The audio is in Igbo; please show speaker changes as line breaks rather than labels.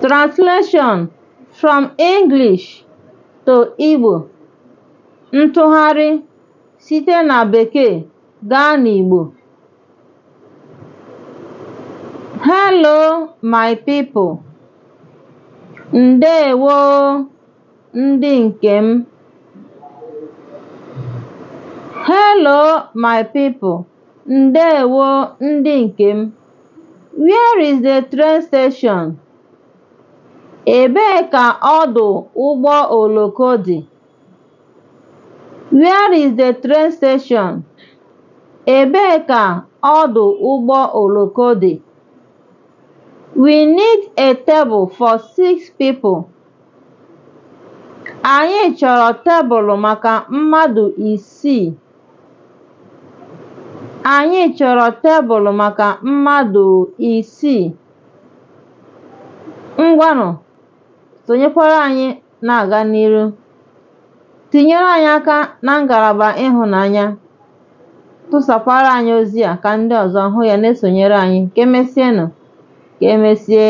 Translation from English to Igbo Ntụgharị site na Bekee gaa n'Igbo Hello my people! Ndeewo ndị nke m! Hello my people! Ndeewo ndị nke m! Where is the train station? Ebee ka ọdụ ụgbọ oloko dị? Where is the train station? Ebee ka ọdụ ụgbọ oloko dị? We need a table for six people. Anyị chọrọ tebụl maka mmadụ isii. Anyị chọrọ tebụl maka mmadụ isii. Ngwanụ sonyekwara anyị na-aga n'ihu tinyere anyị aka na ngalaba ịhụnanya, tụsakwara anyị ozi a ka ndị ọzọ hụ ya na-esonyere anyị, ka emesịanụ, ka emesie